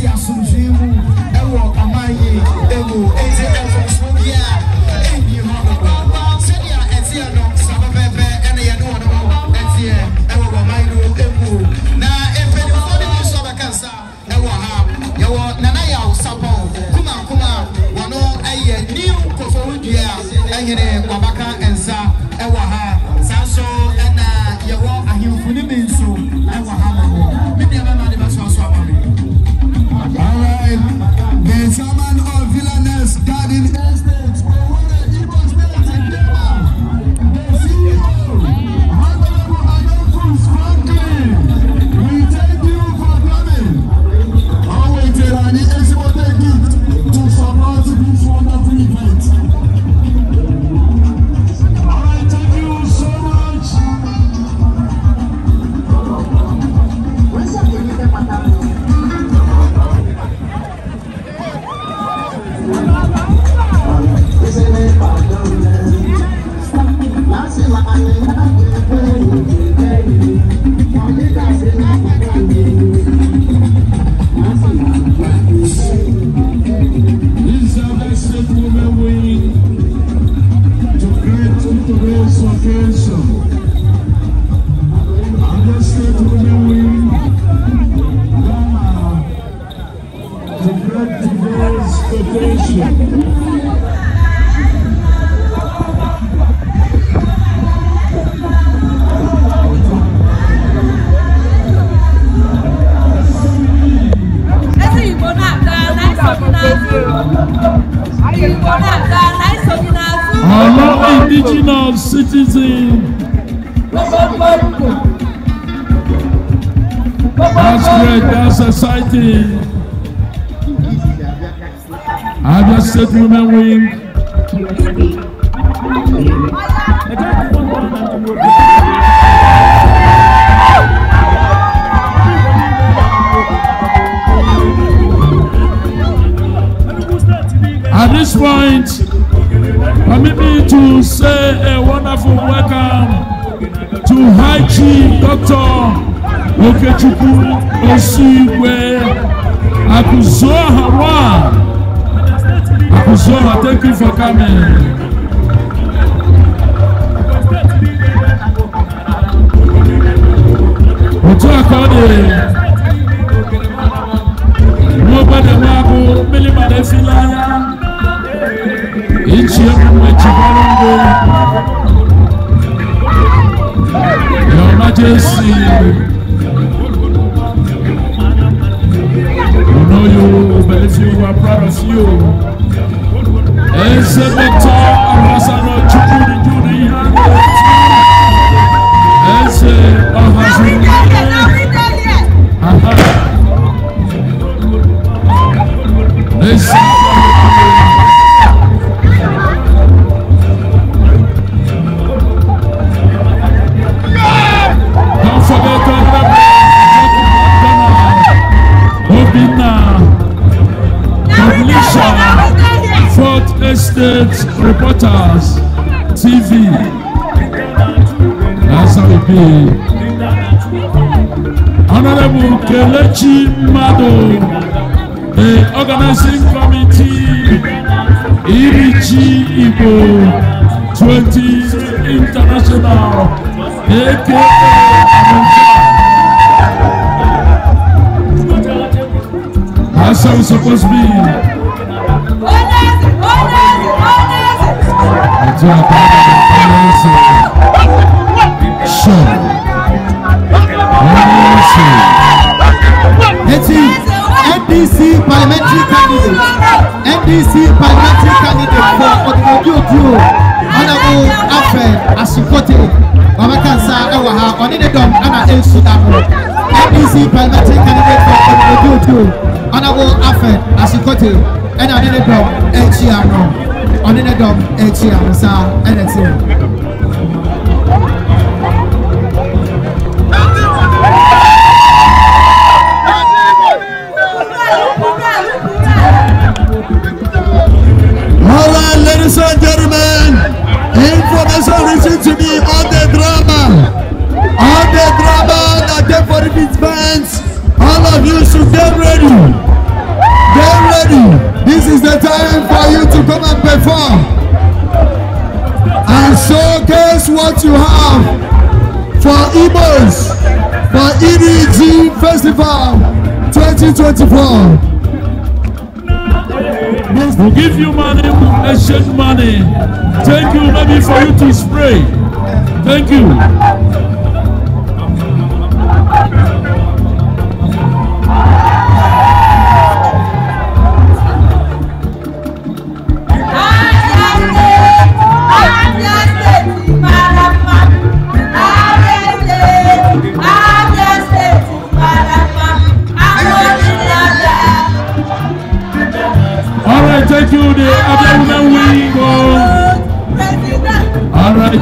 si asomdwe mu ɛwɔ ɔman yi ɛwɔ eti ɛfɔ so bi a ɛnyi hɔ sɛdeɛ ɛteɛ no sábà pɛpɛ ɛna yɛn wɔn no ɛteɛ ɛwɔ ɔman yi ɛmu na mpanyinfoɔ de bi nso abɛka nsa ɛwɔ ha yɛwɔ nana yɛ awosapɔ kumakuma wɔn no ɛyɛ new kofo dua ɛhene waba. captain. Abia State women win. At this point, permit me to say a wonderful welcome to High Chief Doctor okechukwu osu igwe akụzụọha wa akụzụọha thank you for coming. otu a ka ọ dị n'ogbedebe abụ mmiri mara esila anya ichi emume chibara ndụ Your Majesty. believe you. We are proud of you. Ese Dr. Abasano Chukudi Juni Yango. Ese Abasano. Aha. Ese. Government Reporters TV be. Honorable Kelechi Mado the organizing committee Irichi Ibo, 20 International aka That's how it's supposed to be. NDC parliamentary candidate NDC parliamentary candidate for Odumodi Oduo Honorable Afen Asikote Babakansa ẹwà ha ọ̀ní ní dọ̀m ẹ̀nà ẹ̀sù dàpọ̀ NDC parliamentary candidate for Odumodi Oduo Honorable Afen Asikote Ena ọ̀ní ní dọ̀m ẹ̀jì àná ɔne ne a nsa ɛna ti mu. All right, ladies and gentlemen, information received to me on the drama, on the drama that they for All of you should get ready, get ready. This is the time for you to come and perform and showcase what you have for Igbos for EDG Festival 2024. We'll give you money, we'll exchange money. Thank you, maybe for you to spray. Thank you.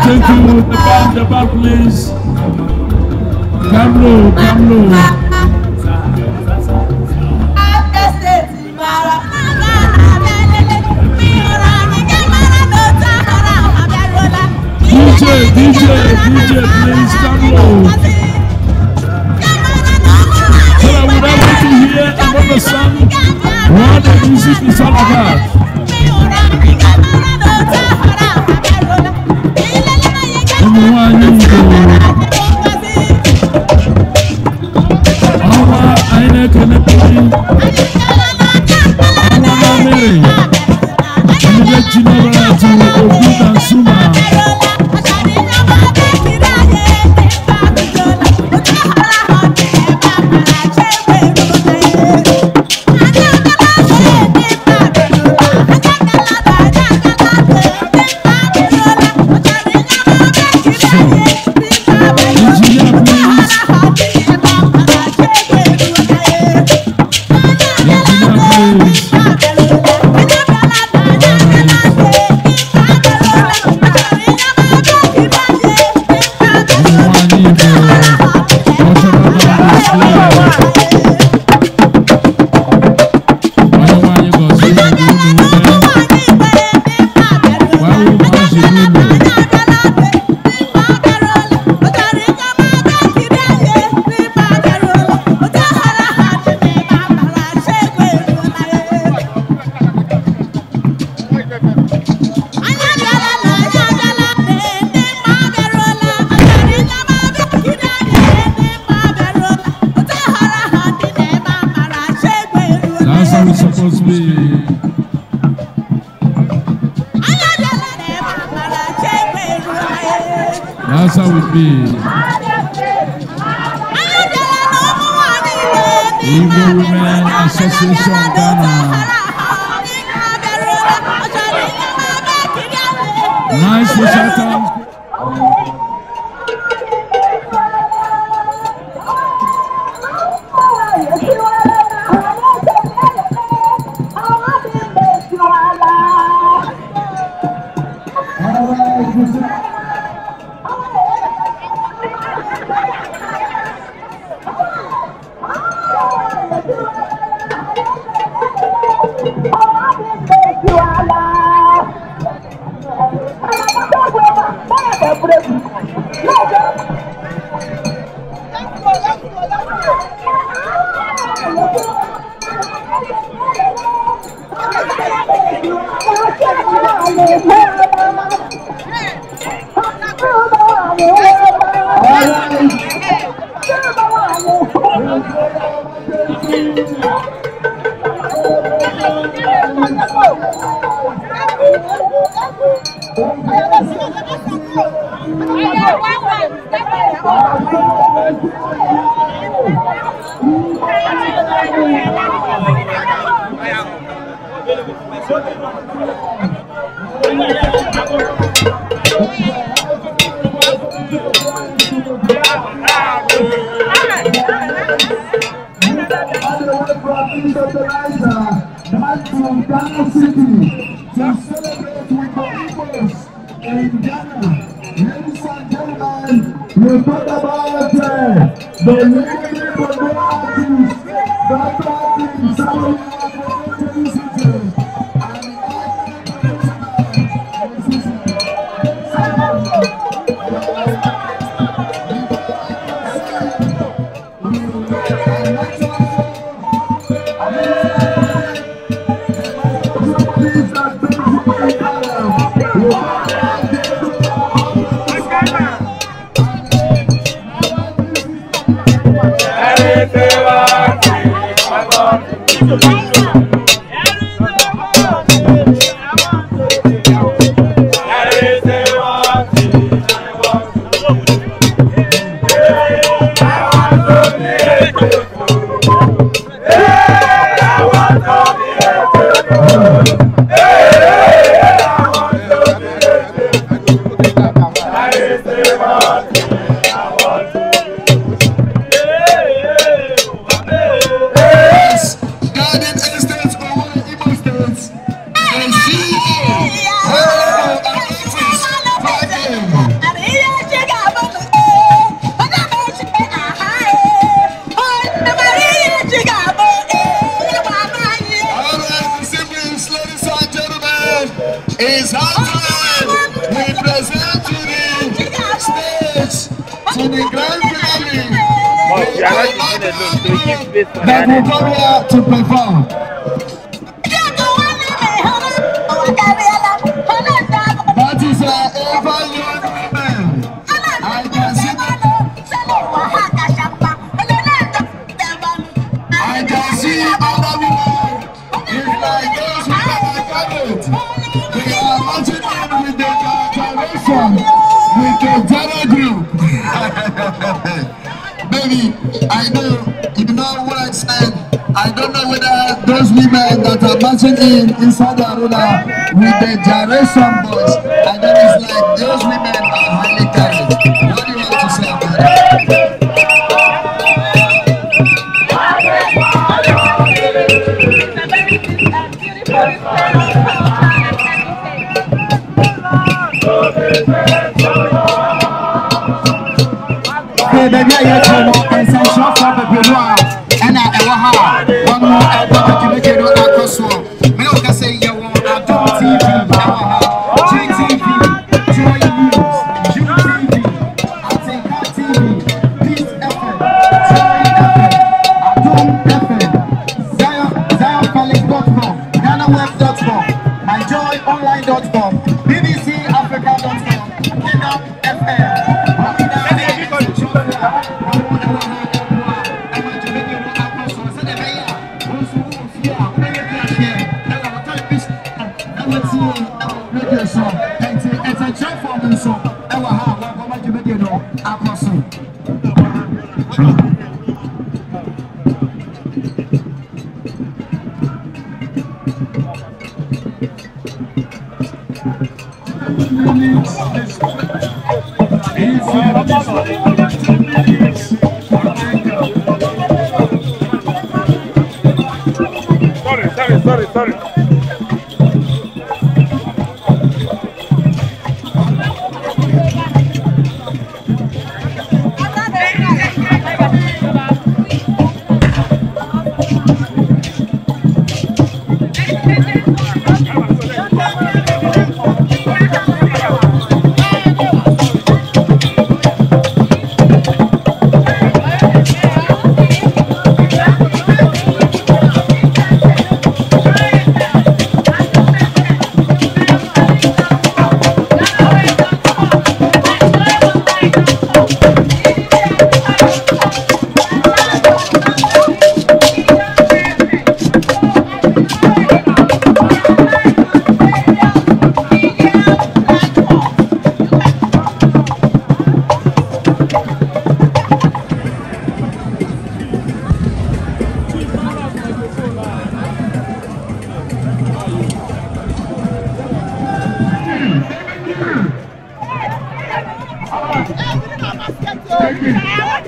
Take with the back, the please. Come low, come low. DJ, DJ, DJ, please come low. I would like to hear another song, What the music is all about. 开始。surprise marching in inside the Arula with the gyration boys. And then it's like those women are highly talented. What do you want to say about that? Okay, baby, I got Alex!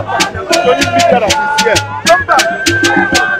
Tony Come back.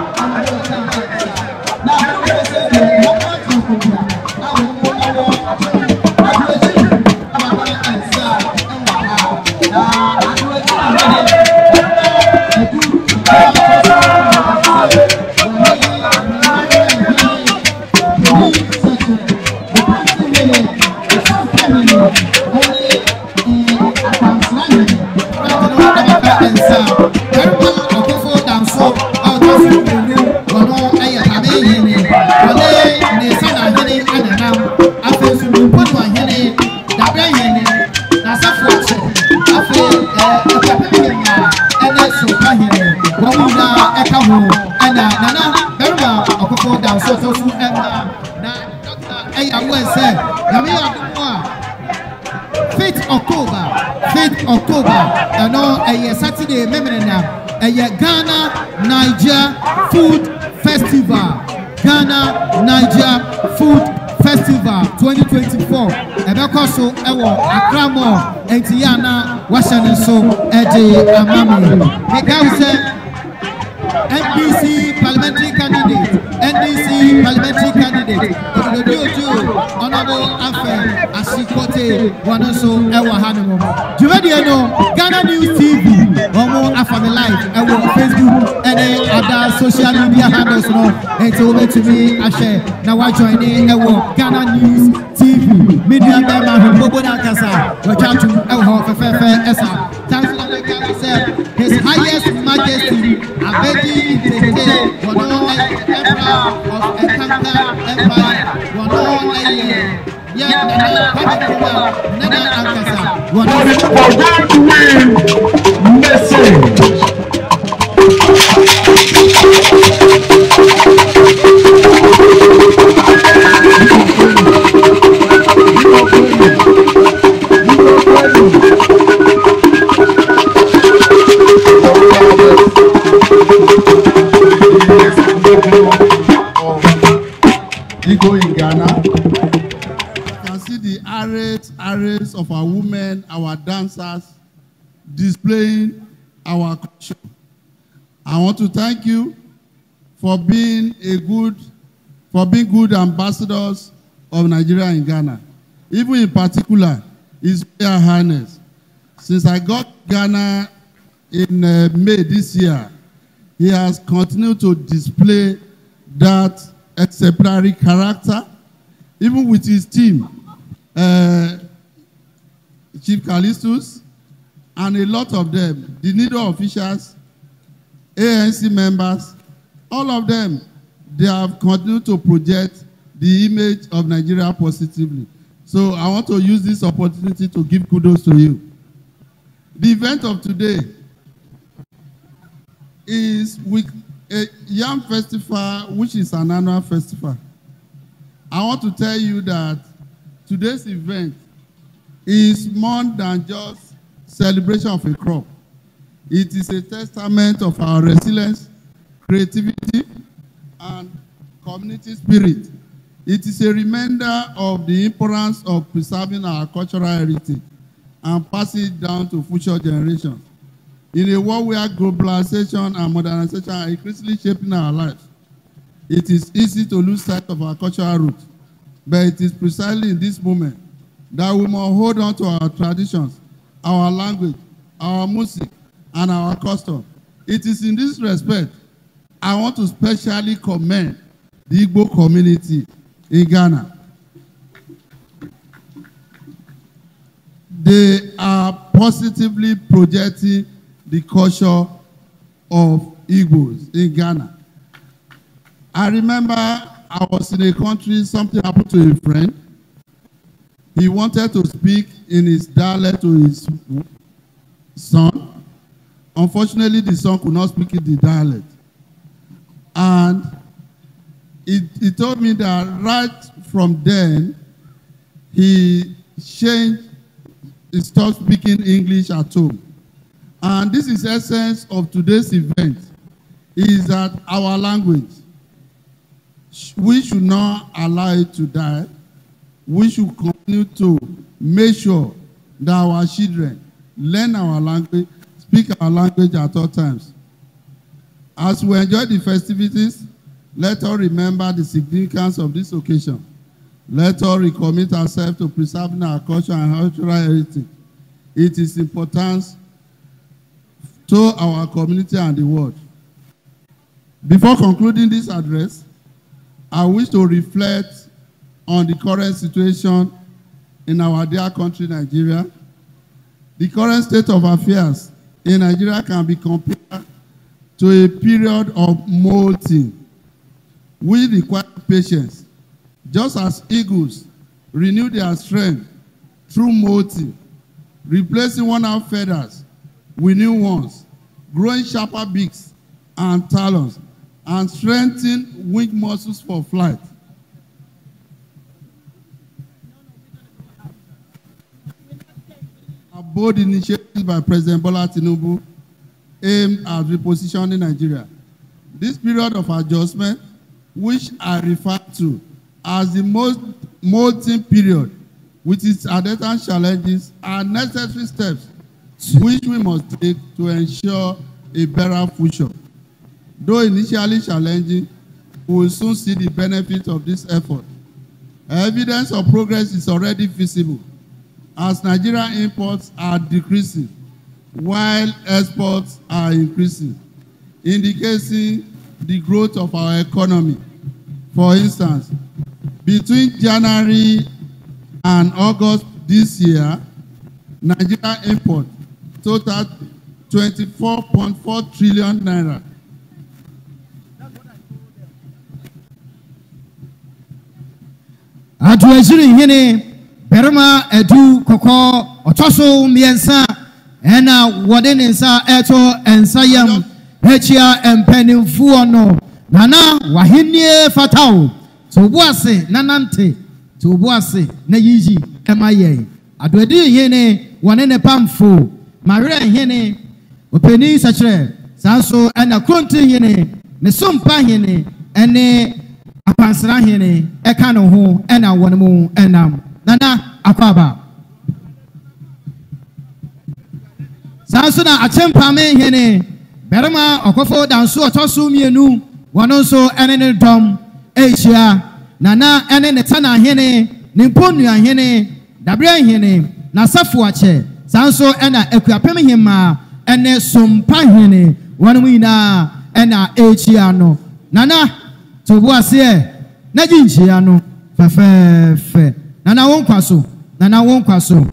nso ɛwɔ Akramo eti yɛ ana wahyɛ ne nso ɛde ama mi mekan sɛ ndc parliamentary candidate ndc parliamentary candidate ododo ojo ɔnabo afɛ asikote wɔn so ɛwɔ ha no mu dwumadie no ghana news tv wɔn mo afa mi live ɛwɔ facebook ɛne ada social media handles no eti wɔn betumi ahyɛ na join ne ɛwɔ ghana news nua bɛrima ahodoɔ bɔ n'akasa wɔtwato ɛwɔ hɔ fɛfɛɛfɛ ɛsa tansi na bɛka sɛ his highest majesty abedi tete wɔno ɛyɛ emperor of ɛkanka empire wɔno ɛyɛ yɛ nana padi kuma nana akasa wɔno. displaying our culture. I want to thank you for being a good, for being good ambassadors of Nigeria in Ghana. Even in particular, His Royal Highness. Since I got Ghana in uh, May this year, he has continued to display that exemplary character, even with his team. Uh, Chief Callistus, and a lot of them, the NIDO officials, ANC members, all of them, they have continued to project the image of Nigeria positively. So I want to use this opportunity to give kudos to you. The event of today is with a Yam Festival, which is an annual festival. I want to tell you that today's event is more than just celebration of a crop. It is a testament of our resilience, creativity, and community spirit. It is a reminder of the importance of preserving our cultural heritage and passing it down to future generations. In a world where globalization and modernization are increasingly shaping our lives, it is easy to lose sight of our cultural roots. But it is precisely in this moment that we must hold on to our traditions our language, our music, and our custom. It is in this respect I want to specially commend the Igbo community in Ghana. They are positively projecting the culture of Igbos in Ghana. I remember I was in a country, something happened to a friend, He wanted to speak in his dialect to his son. Unfortunately, the son could not speak in the dialect. And he, he told me that right from then, he changed, he stopped speaking English at home. And this is essence of today's event, is that our language, we should not allow it to die we should continue to make sure that our children learn our language, speak our language at all times. As we enjoy the festivities, let us remember the significance of this occasion. Let us recommit ourselves to preserving our culture and cultural heritage. It is important to our community and the world. Before concluding this address, I wish to reflect on the current situation in our dear country, Nigeria. The current state of affairs in Nigeria can be compared to a period of molting. We require patience, just as eagles renew their strength through molting, replacing worn-out feathers with new ones, growing sharper beaks and talons, and strengthening wing muscles for flight. bold initiatives by President Bola Tinubu aimed at repositioning Nigeria. This period of adjustment, which I refer to as the most molting period with its attendant challenges, are necessary steps which we must take to ensure a better future. Though initially challenging, we will soon see the benefits of this effort. Evidence of progress is already visible as Nigeria imports are decreasing while exports are increasing, indicating the growth of our economy. For instance, between January and August this year, Nigeria import totaled 24.4 trillion naira. I Atuweziri hini barima edu kɔkɔɔ ɔtɔ so mmiɛnsa ɛna wɔde ne nsa ɛto nsa yam ɛkyia mpanimfoɔ no nana wahenie fatao to obu ase nanante to obu ase na yiyi ɛma yɛn adoadi hene wɔne ne pamfo mawerɛ hene opanin sɛkyerɛ saa nso ɛna kronti hene ne sompa hene ɛne akwansra hene ɛka ne ho ɛna wɔn mu ɛnam. nana akwaba saa nso na akyɛmpame hene barima ɔkɔfo danso ɔtɔ so mmienu wɔn nso ne ne dɔm ahyia nana ne ne tana hene ne mponua hene dabrɛ hene n'asafo akyɛ saa nso na akuapem hemaa ne sompa hene wɔn nyinaa na ahyia no nana to bu aseɛ n'agyi nhyia no fɛfɛɛfɛ. nana wo kwa so nana wo kwa so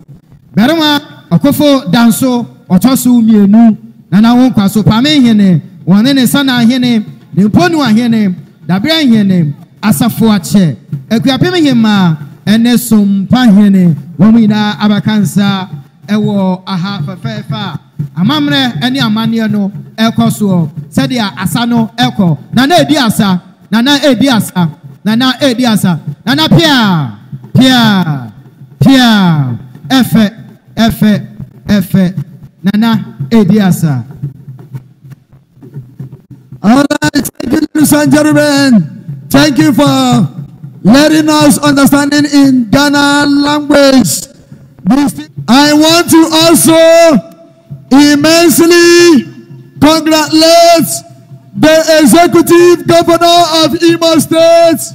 barima ɔkofo danso ɔtɔ so mmienu nana wo kwa so pame hene wɔne ne sana hene ne mponu ahene dabere hene asafo akyɛ akuapem hema ɛne sompa hene wɔn nyinaa abaka nsa ɛwɔ aha fɛfɛɛfɛ a amammerɛ ɛne amanneɛ no ɛkɔ soɔ sɛdeɛ asa no ɛkɔ nana edi asa nana edi asa nana edi asa nana Pia, Pia, Efe, Efe, Efe, Nana, Ediasa. All right, thank you, ladies and gentlemen. Thank you for letting us understand in Ghana language. I want to also immensely congratulate the executive governor of Imo State.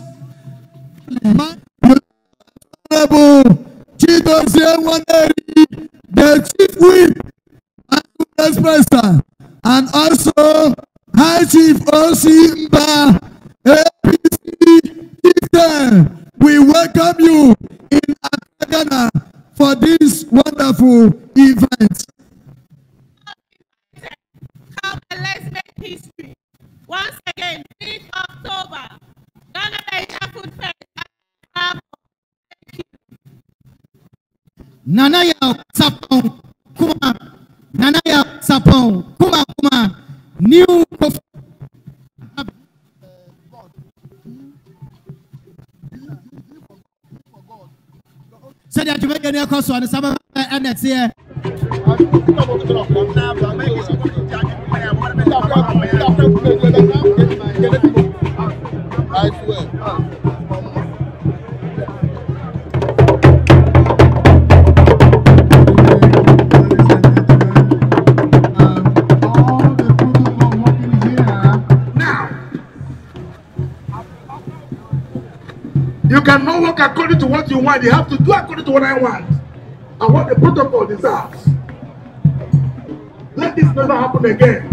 Honorable Chidozie Waneri, the Chief Whip and Vice President, and also High Chief O.C. Mba, APC Chieftain. We welcome you in Accra, Ghana for this wonderful event. Come and let's make history. Once again, 5th October, Ghana Asia Food Fest nanayaw sapɔn kuma nanayaw sapɔn kuma kuma new kofi. sɛdeɛ dwumadie no ɛkɔ soɔ no sɛ ɛna teɛ I swear. cannot work according to what you want. You have to do according to what I want. And what the protocol deserves. Let this never happen again.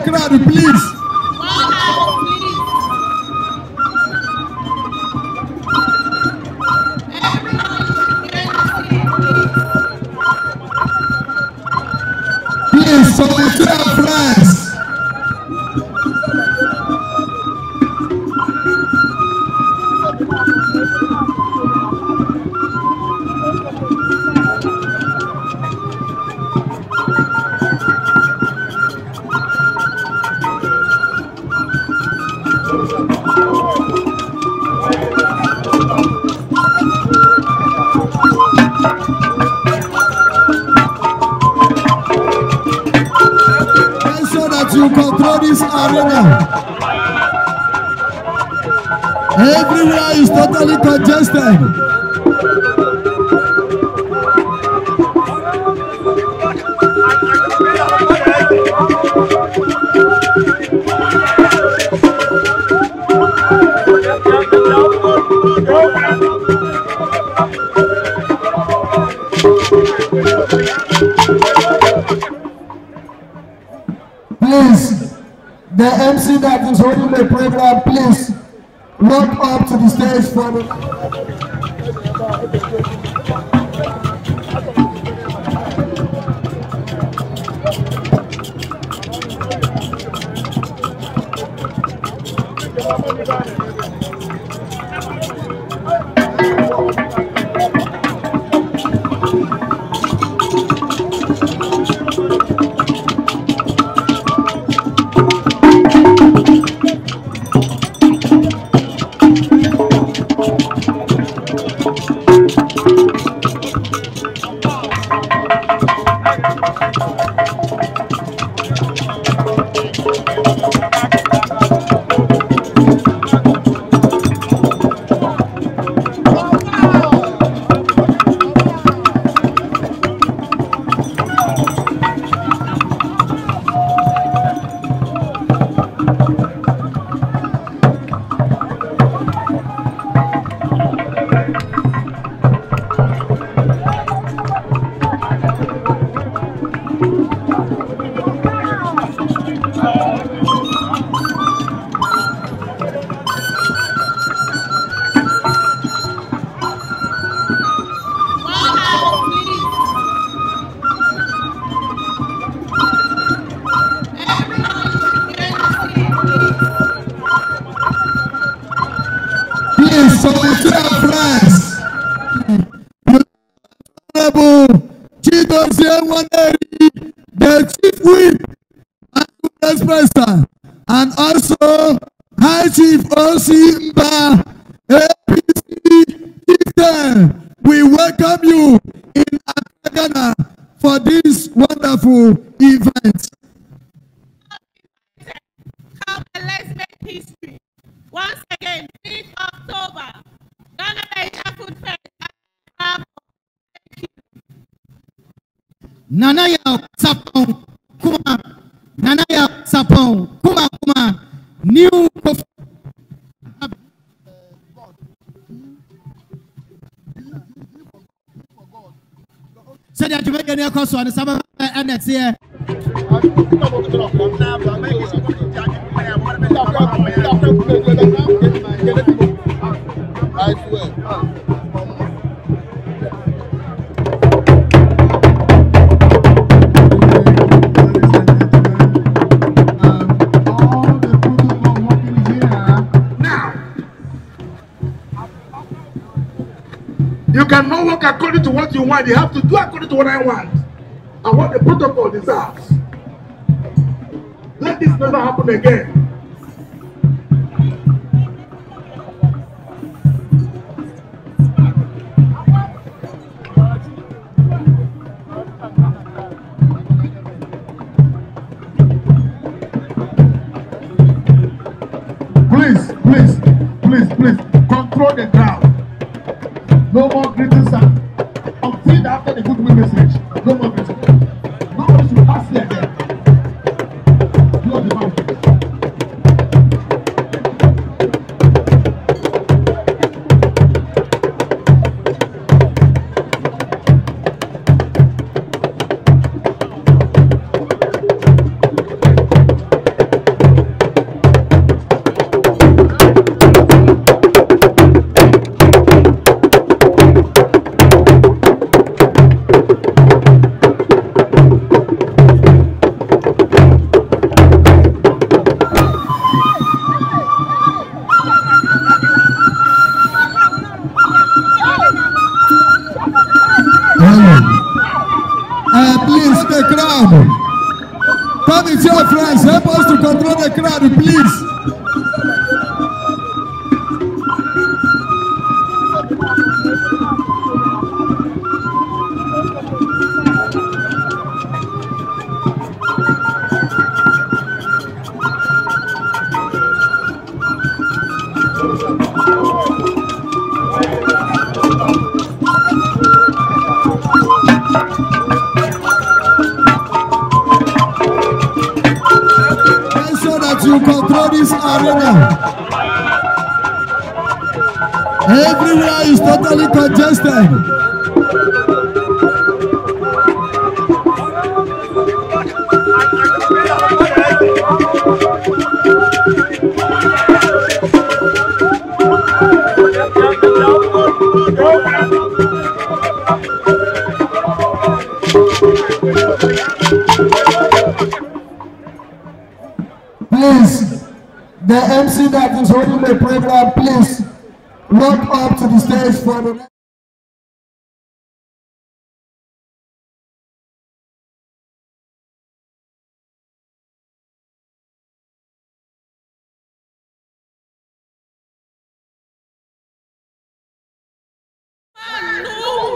claro this arena. Everywhere is totally congested. the program, please walk up to the stage for me. aseɛ. You cannot work according to what you want. You have to do according to what I want and what the protocol deserves. Let this never happen again. Please, please, please, please, control the crowd. No more greetings sir. I'm until after the good message. No more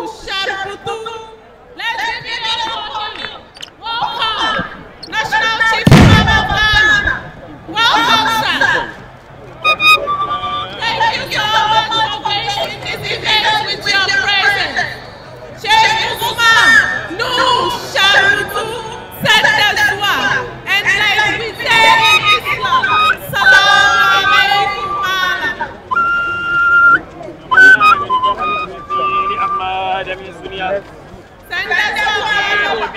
Puxaram pro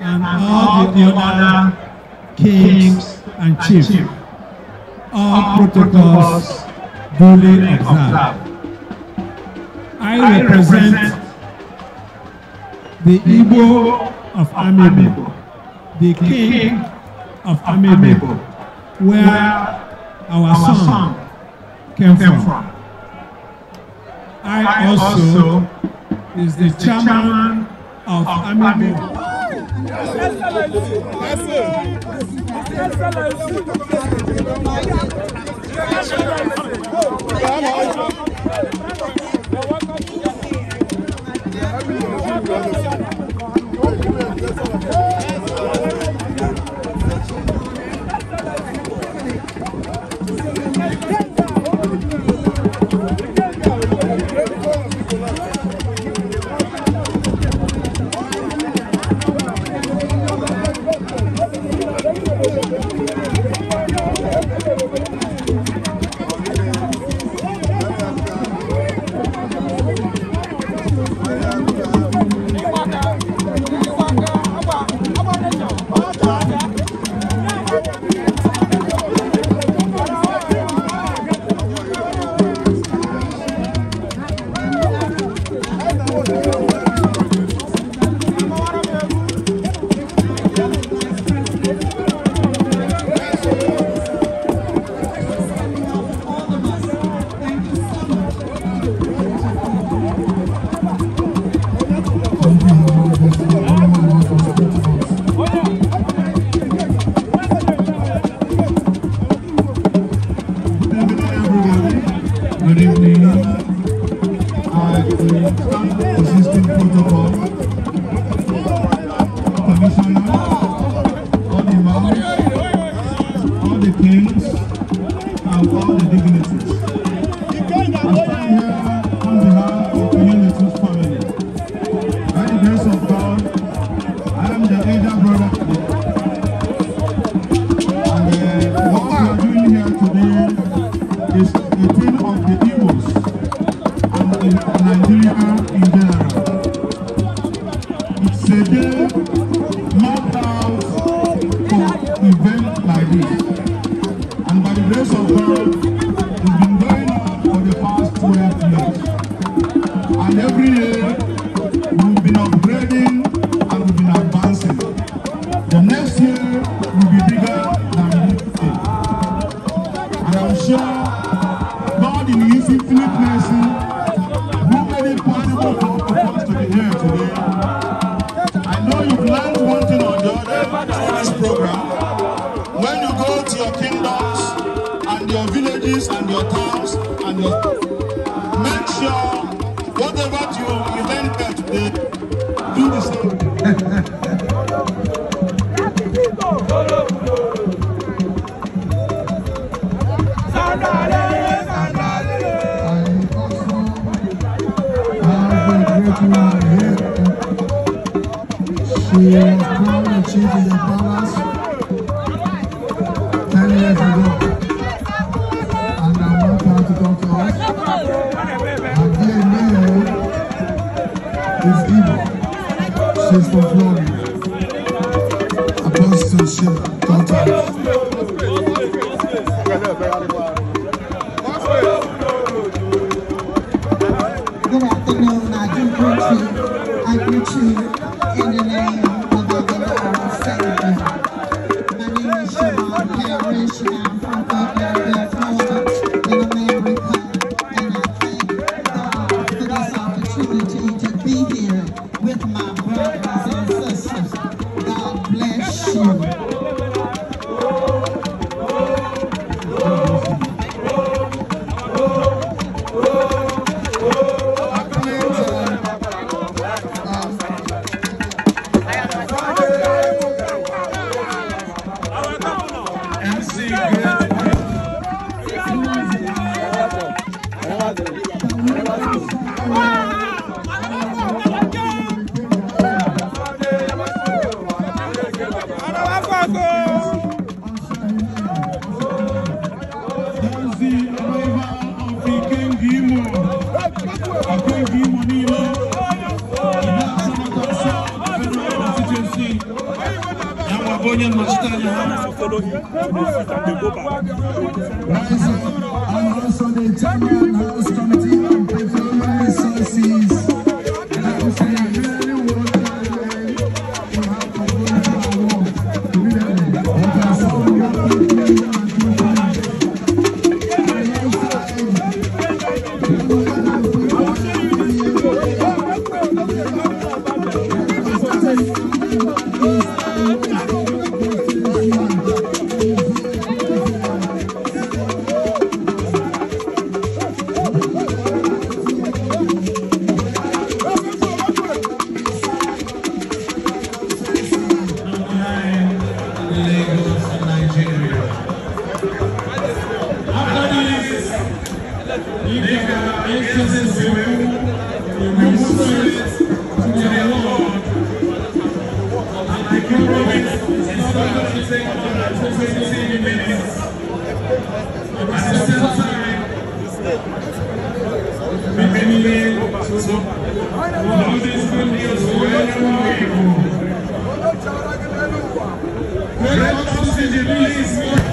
and all the other kings and chiefs. All protocols duly observed. I represent the Igbo of Amibo, the king of Amibo, where our song came from. I also is the chairman of Amibo. Excellency. Excellency. all the all the kings, and all the dignitaries. 是吗？Thank you.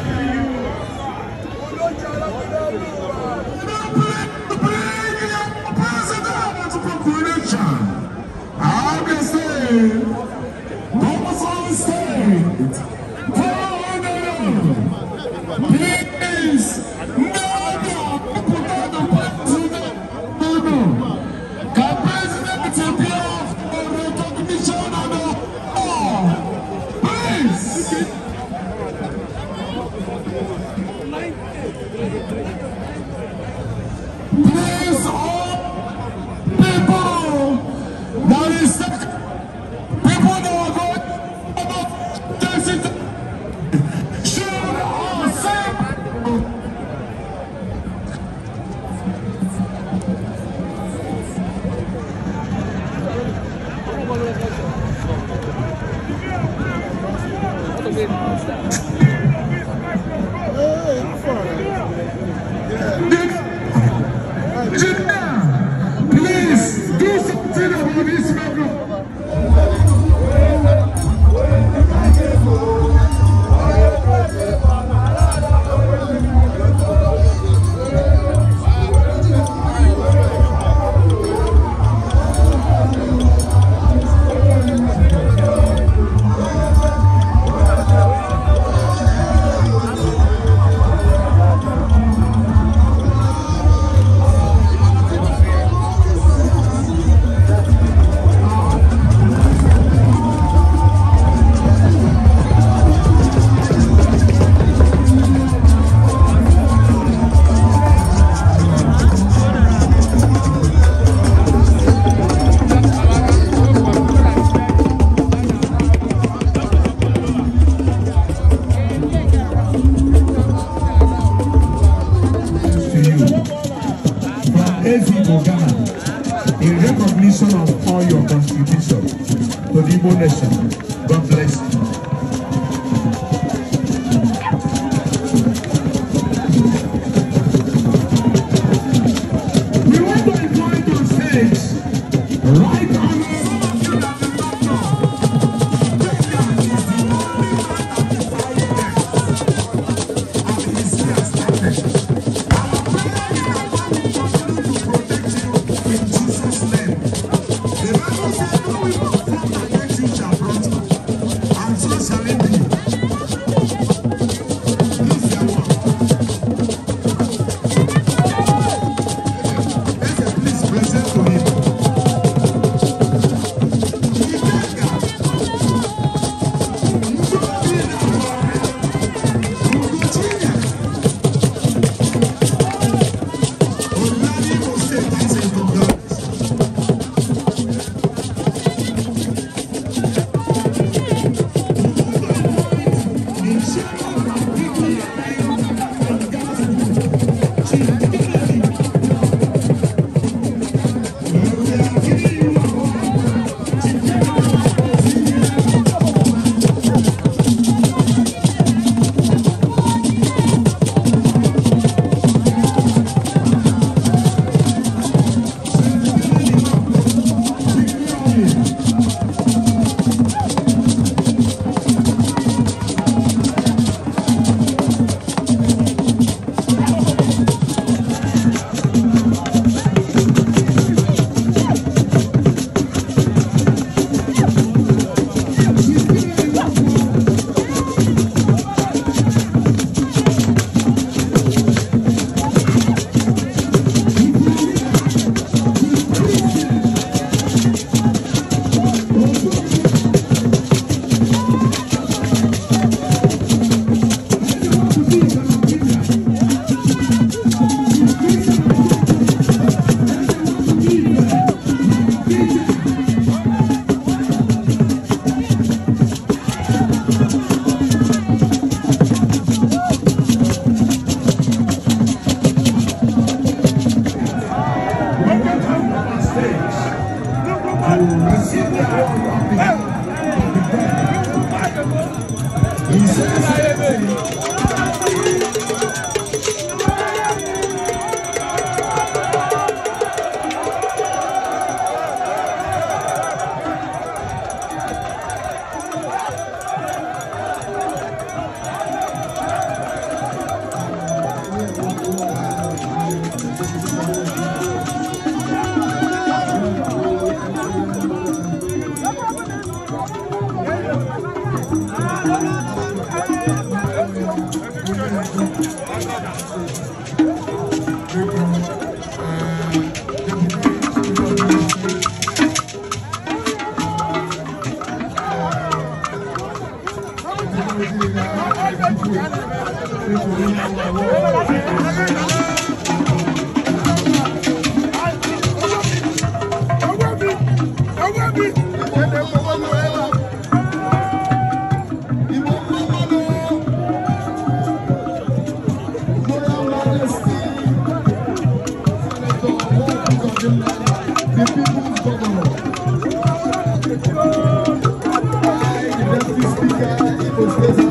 Thank you.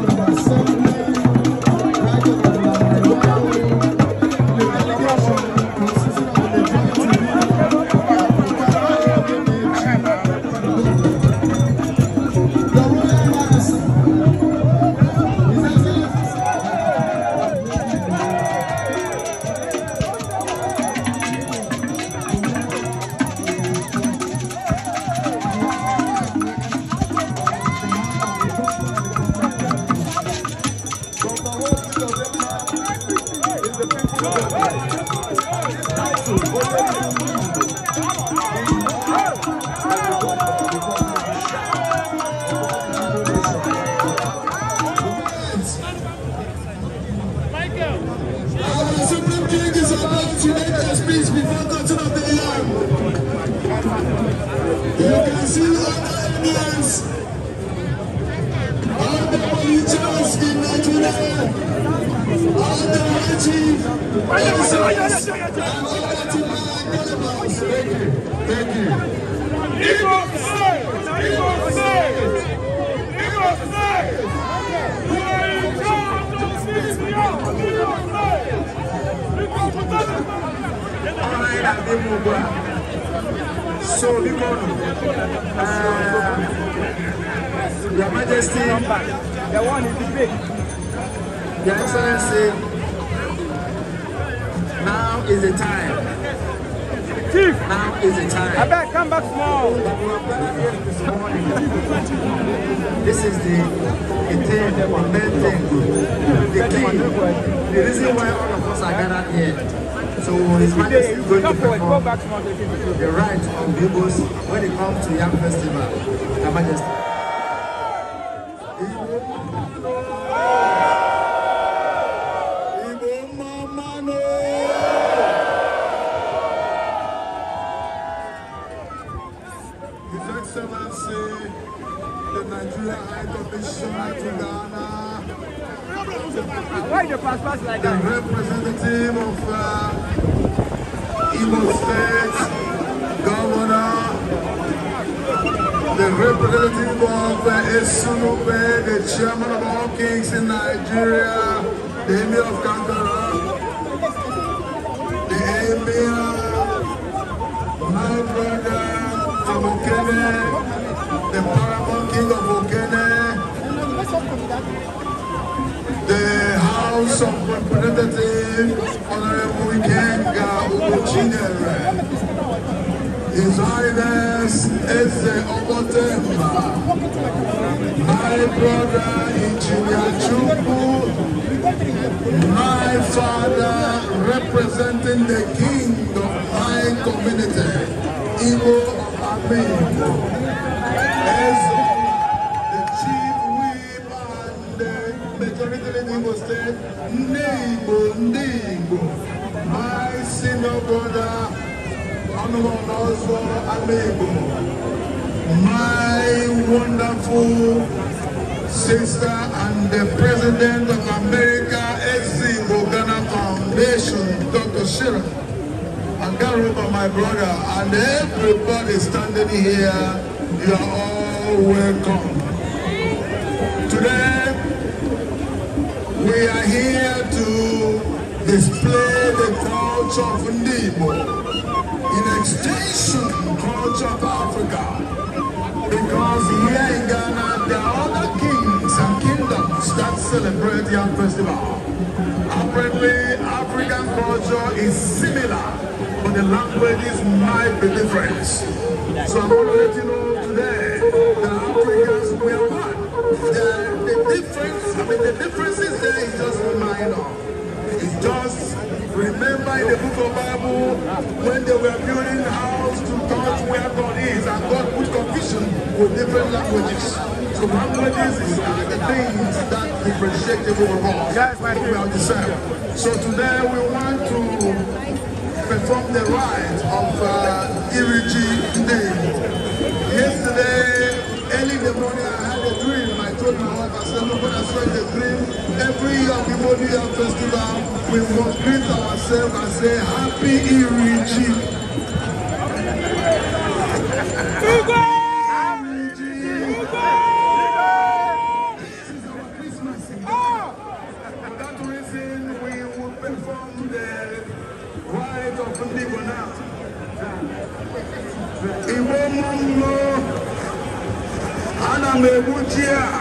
the House of Representatives, Honorable Kenga Ubuchinere, His Highness Eze Obotemba, my brother Engineer Chukwu my father representing the king of my community, Igbo Amigo as the chief whip and the majority in Igbo state, Nigbo, Nigbo, my senior brother, Honorable also Amigo, my wonderful sister and the president children. I can't my brother. And everybody standing here, you are all welcome. Today, we are here to display the culture of Nibo in extension culture of Africa. Because here in Ghana, there are other kings and kingdoms that celebrate young festival. Apparently, Africa culture is similar, but the languages might be different. So I'm going to let you know today that Africans, we are one. The, the difference, I mean, the differences there is just minor. It's just, remember in the book of Bible, when they were building house to God where God is, and God put confusion with different languages commonalities is the things that differentiate you from wrong about yourself. So today we want to perform the rite of uh, Iriji Day. Yesterday, early in the morning, I had a dream. I told my wife, I said, look, when I saw the dream, every year the year festival, we must greet ourselves and say, Happy Iriji. Google! bom dia!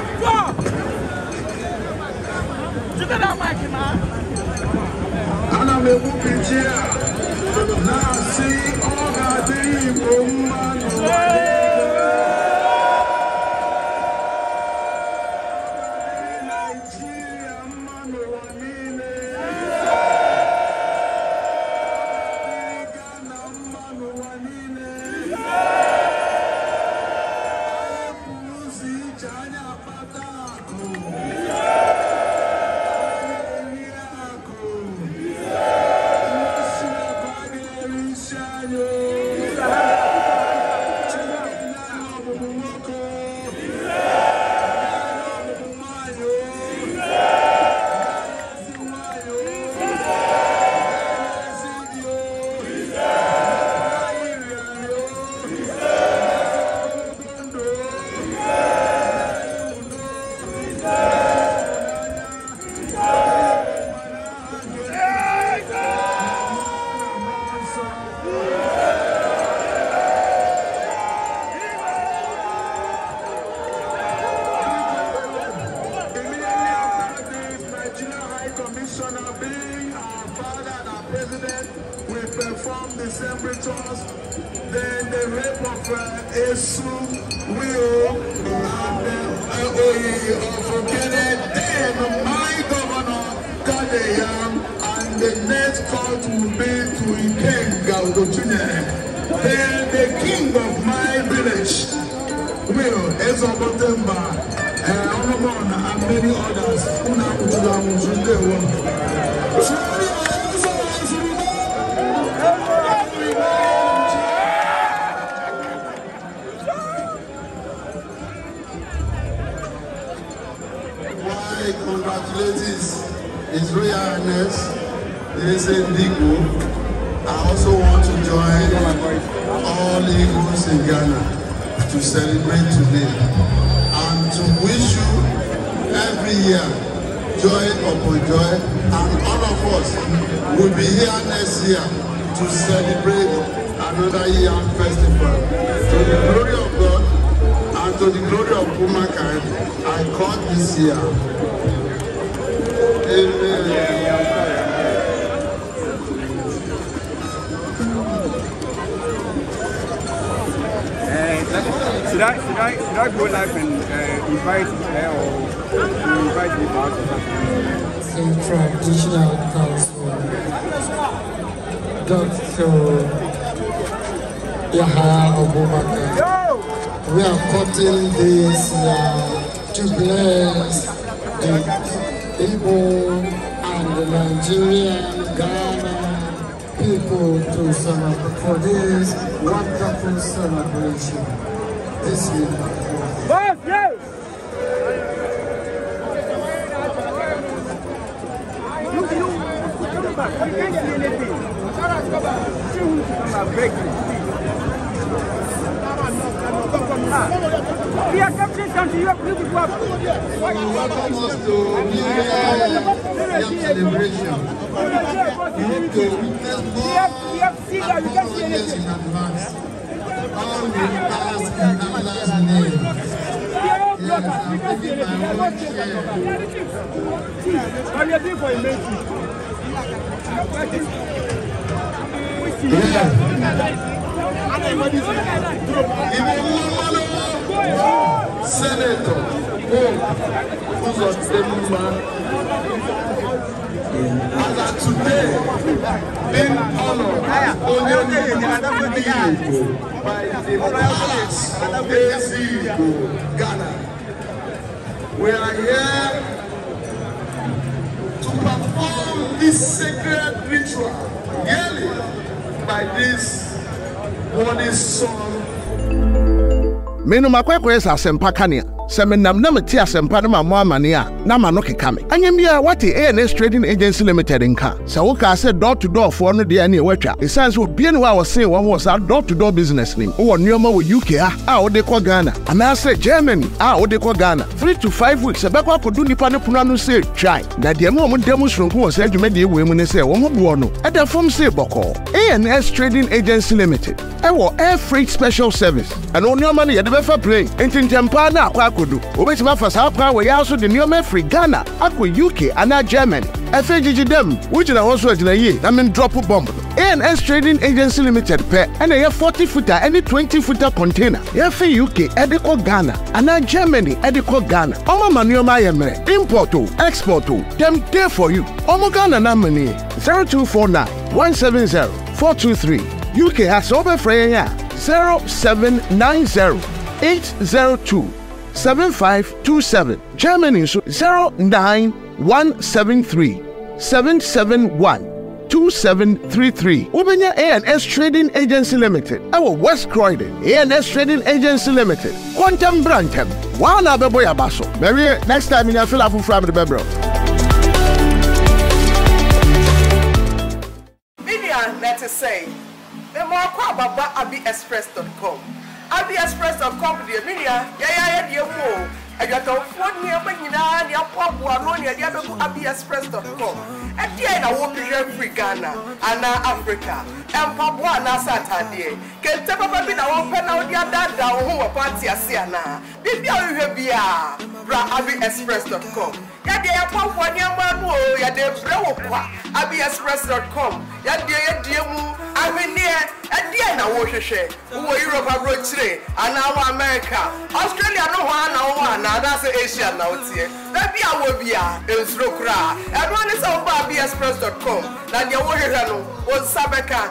we are cutting this uh, to bless the Igbo and the Nigerian Ghana people to celebrate for this wonderful celebration this year. I can't see anything. I'm He has come to this country, you have to give up. You welcome us to New Year celebration. We hope to witness more and more goodness in advance. All will pass in Allah's name. Yes, I'm giving my own share. But you're Senator Pope Uzodinma. As at today, being honored as Onyenuwa Igbo by the House of Ezigbo, Ghana. We are here to perform this sacred ritual yearly by this holy son menom akɔ akɔyɛ sɛ asɛmpa kanea sɛ menam na mete asɛmpa no ma mo amane a na ma no keka me anyɛ bia wate ans trading agency limited nka sɛ wokaa sɛ dɔ to dɔɔfoɔ no deɛ ɛneɛ woatwa ɛsiane sɛ obia ne wɔ a wɔsee wɔn wɔ saa dɔ to dɔ business nim wowɔ nneɔma wɔ uk a a wode kɔ ghana anaasɛ germany a wode kɔ ghana 3 to 5 weeks ɛbɛkɔ akɔdo nnipa no pono ano sɛ twae na deɛ ma ɔmo da mu soronko wɔ saa adwumadeɛ wei mu ne sɛ wɔn ho boɔ no ɛda fam see bɔkɔɔ ans trading agency limited ɛwɔ air freight special service ɛno nneɔma no yɛde bɛfa plane ntintampaa no akɔ akɔ kodo wobɛtumi afa saa kwan wɔ yɛa so de nneɔma afiri ghana akɔ uk anaa germany ɛfɛ gyigyi dɛm wogyina hɔ so agyina yie na drop bɔmb no ans trading agency limited pɛ ɛna ɛyɛ forty futa ɛne twenty futa container yɛfe uk ɛde kɔ ghana anaa germany ɛde kɔ ghana ɔma ma nneɔma ayɛ mmerɛ import o export o dɛm dɛ for you ɔmo ghana na zero four two three. uk ha sɛ wobɛfrɛ yɛn a zero two. 7527. Germany nso 09173 771 2733. Wobɛnya ANS Trading Agency Limited ɛwɔ West Croydon. ANS Trading Agency Limited. Quantum brantɛm. Wɔn bebo bɛbɔ yaba so. Mɛwie next time ni afila afoforɔ amidi bɛbrɛ. Media na ɛte sɛ, mɛmɔ akɔ ababa abiexpress.com. Abia Express of Company, Emilia, ah, yeah, yeah, yeah, yeah, adwatamfoɔ nneɛma nyinaa ne apɔ aboa no ne ɛde abɛgu abiexpress.com ɛdeɛ na wɔpehwɛ afiri ghana anaa africa And ɛmpaboa anaasɛ atadeɛ kente papa bi na wɔmpɛ na wode adaadaa wo ho wɔ party ase anaa biribi a wohwɛ biaa bra abiexpress.com yɛdeɛ yɛpɔ aboa nneɛma no o yɛde brɛ wo kwa here. yɛdeɛ yɛdie mu ahwenneɛ ɛdeɛ na wɔhwehwɛ wowɔ europe Today, and now america australia no one, no one na anaasɛ asia na woteɛ baabi a wɔ bi a nsuro koraa ɛno ne sɛ wobaa bexpress com na deɛ wohwehwɛ no wo nsa bɛka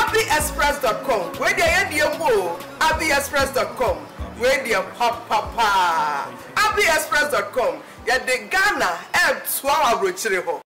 abiexpress com wei deɛ yɛdeɛ mu o oh, abiexpress com wei deɛ papapaa abiexpress com yɛde ghana ɛɛtoa wɔ aburokyire hɔ